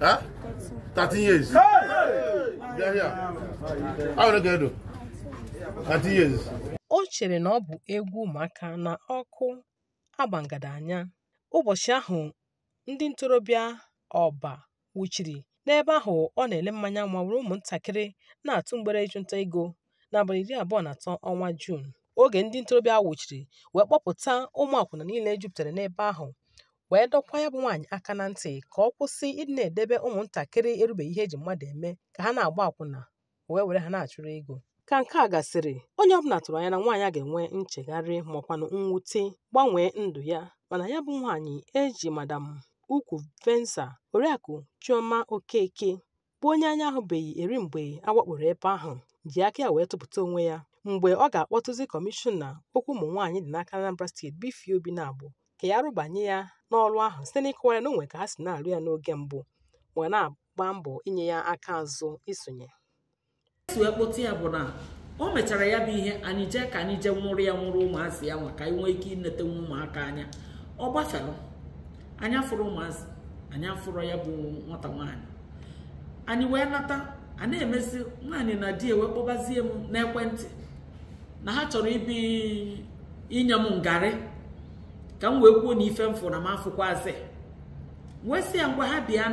Huh? 13 years. Hey! Bịa here. How are you 13 years. O chere na ọ bụ egwu maka na ọkụ agbangada anya. Ụbọchị ahụ ndị ntorobịa ọba wuchiri n'ebe ahụ ọ na-ele mmanya nwa were ụmụntakịrị na-atụ mgbere ịchụnta ego n'abalị iri abụọ na atọ ọnwa Juun oge ndị ntorobịa wuchiri wee kpọpụta ụmụ akwụna niile jupụtara n'ebe ahụ wee dọkwa ya bụ nwaanyị aka na ntị ka ọ kwụsị ịdị na-edebe ụmụntakịrị erubeghị ihe eji mmadụ eme ka ha na-agba akwụna wee were ha na-achụrụ ego ka nke a gasịrị onye ọbụla tụrụ anya na nwaanyị a ga-enwe nchegharị makwanụ mwute gbanwee ndụ ya mana ya bụ nwaanyị eji madam ukwu venza oriakụ chioma okeke bụ onye anya ahụbeghị eri mgbe awakporo ebe ahụ ji aka ya wee tụpụta onwe ya mgbe ọ ga-akpọtụzi kọmishọna okwu ụmụ nwaanyị dị n'aka Anambra steeti Bifie Obi-Nabọ ka ya rụbanye ya n'ọrụ ahụ site n'ịkọwa ya na onwe ka ha si na-arụ ya n'oge mbụ wee na-agba mbọ inye ya aka azụ isonye si e ya bụ na o mechara ya bụ ihe anyị jee ka anyị jee nwụrụ ya nwụrụ ụmụazị ya nwa ka anyị nwee ike inete nwa ụmụaka anya ọ gbasara anya afụrụ ụmụazị anyị afụrụ ya bụ nwata nwaanyị anyị wee nata a na-emezi nwaanyị na di wee kpọbazie m n'ekwentị na ha chọrọ ibi inye m ngarị ka m wee kwuo na ife m fụ na m afụkwazị wee sị ya ngwa ha bịa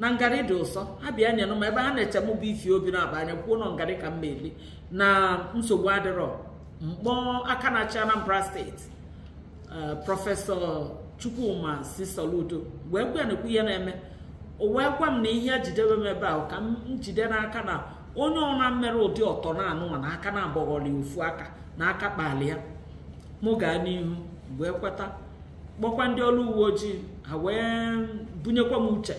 na ngarị dị ụsọ ha bịa nyenụ m ebe ha na-eche m bụ ifi obi na-aba anya kwuo ngarị ka m na-eli na nsogbu adịrọ mkpọ aka na-achị Anambra steeti eh, prọfesọ Chukwuma si Soludo wee gwa na-ekwu ihe na-eme wee gwa m na ihe jidebe m ebe ahụ ka m jide n'aka na onye ọna mmere ụdị ọtọ na anụnwa na aka na-abọghọli ofu aka na aka kpali ya mụ gaa n'ihu wee kweta kpọkwa ndị ọrụ uwe ojii ha wee bunyekwa m uche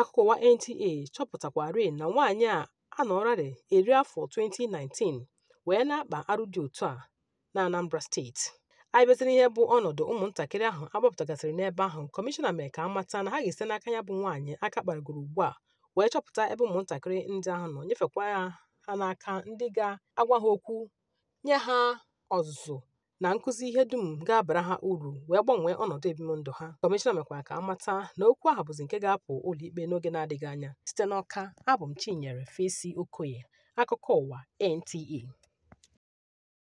akụkọwa NTA chọpụtakwarị na nwaanyị a anọrarị eri afọ 2019 wee na-akpa arụ dị otu a na Anambra steeti anyị bịaziri ihe bụ ọnọdụ ụmụntakịrị ahụ agbapụtagasịrị n'ebe ahụ kọmishọna mere ka amata na ha ga ese n'aka ya bụ nwaanyị aka kparagoro ugbu a wee chọpụta ebe ụmụntakịrị ndị ahụ nọ nyefekwa ha n'aka ndị ga-agwa ha okwu nye ha ọzụzụ na nkụzi ihe dum ga-abara ha uru wee gbanwee ọnọdụ ebimụndụ ha kọmishọna mekwara ka amata na okwu ahụ bụzi nke ga-apụ ụlọ ikpe n'oge na-adịghị anya site n'ọka abụ m chinyere fesi okoye akụkọ ụwa nta e.